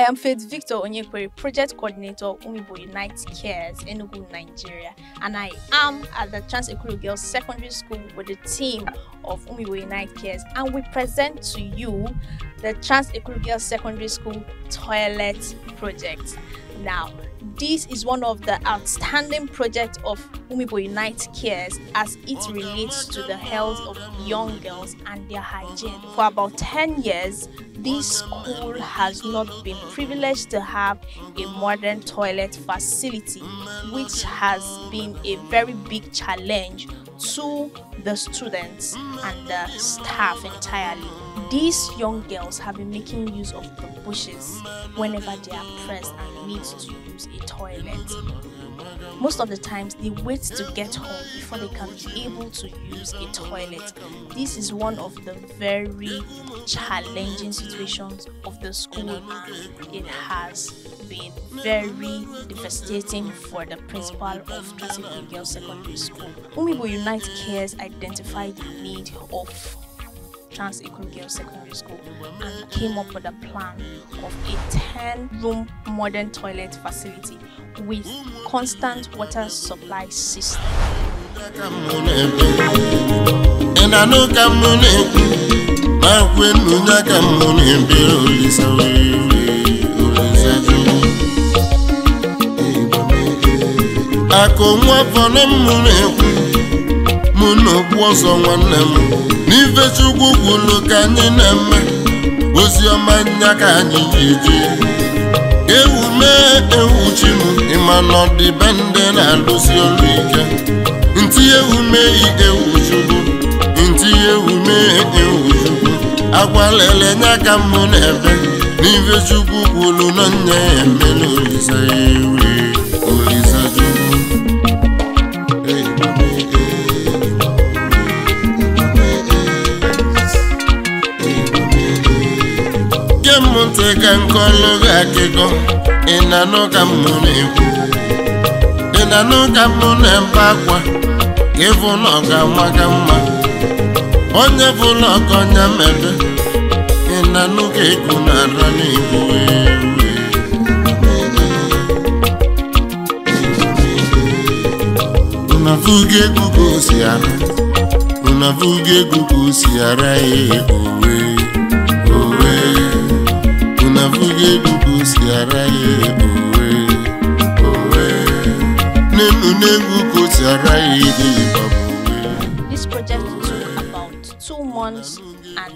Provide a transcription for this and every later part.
I am Faith Victor Onyekwere, Project Coordinator, Umibo Unite Cares, Enugu, Nigeria, and I am at the Transekuru Girls Secondary School with the team of Umibo Unite Cares, and we present to you the Transekuru Girls Secondary School Toilet Project now. This is one of the outstanding projects of Umibo Unite Cares as it relates to the health of young girls and their hygiene. For about 10 years, this school has not been privileged to have a modern toilet facility, which has been a very big challenge to the students and the staff entirely. These young girls have been making use of the bushes whenever they are pressed and need to use a toilet. Most of the times, they wait to get home before they can be able to use a toilet. This is one of the very challenging situations of the school. It has been very devastating for the principal of Castle Girls Secondary School. Umibo Unite Cares identified the need of Trans Equal Girls Secondary School and came up with a plan of a 10 room modern toilet facility with constant water supply system. ọma nya ka anyị ga ewume ewu mee ewu chi m ịma na ndị na-alụsi ọrụ ike ntị ewu ewuchukwu ewu ntị ewu mee ewu chukwu nya ka m na efe n'ife chukwu na nya ya emela olise ewu nteka nkolu ga-akịgo e na-anụ ka mụ na-ekwu na-anụ ka mụ na-ebe akwa ịbụ e na ọ ka mma onye bụ ọka ọnya mebe ịnanụ ka ego na-ara ka si ara unavuga This project took about two months and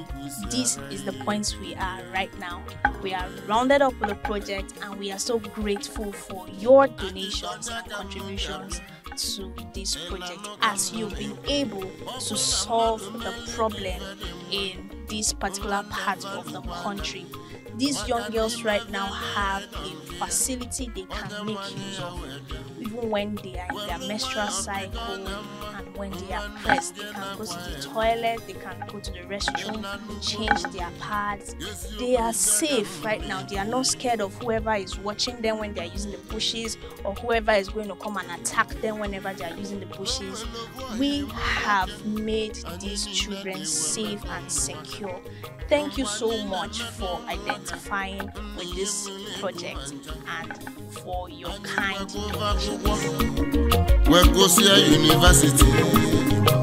this is the point we are right now. We are rounded up with the project and we are so grateful for your donations and contributions to this project as you've been able to solve the problem in this particular part of the country these young girls right now have a facility they can make use of, even when they are in their menstrual cycle and when they are pressed. They can go to the toilet, they can go to the restroom, change their pads. They are safe right now. They are not scared of whoever is watching them when they are using the bushes or whoever is going to come and attack them whenever they are using the bushes. We have made these children safe and secure. Thank you so much for identifying identifying with this project and for your kind donations. Well, go university.